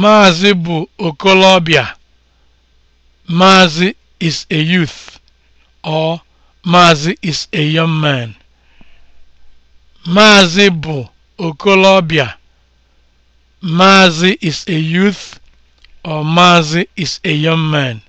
Maazị bụ okolobịa. (Maazị is a youth or Maazị is a young man. Maazị bụ okolobịa. (Maazị is a youth or Maazị is a young man.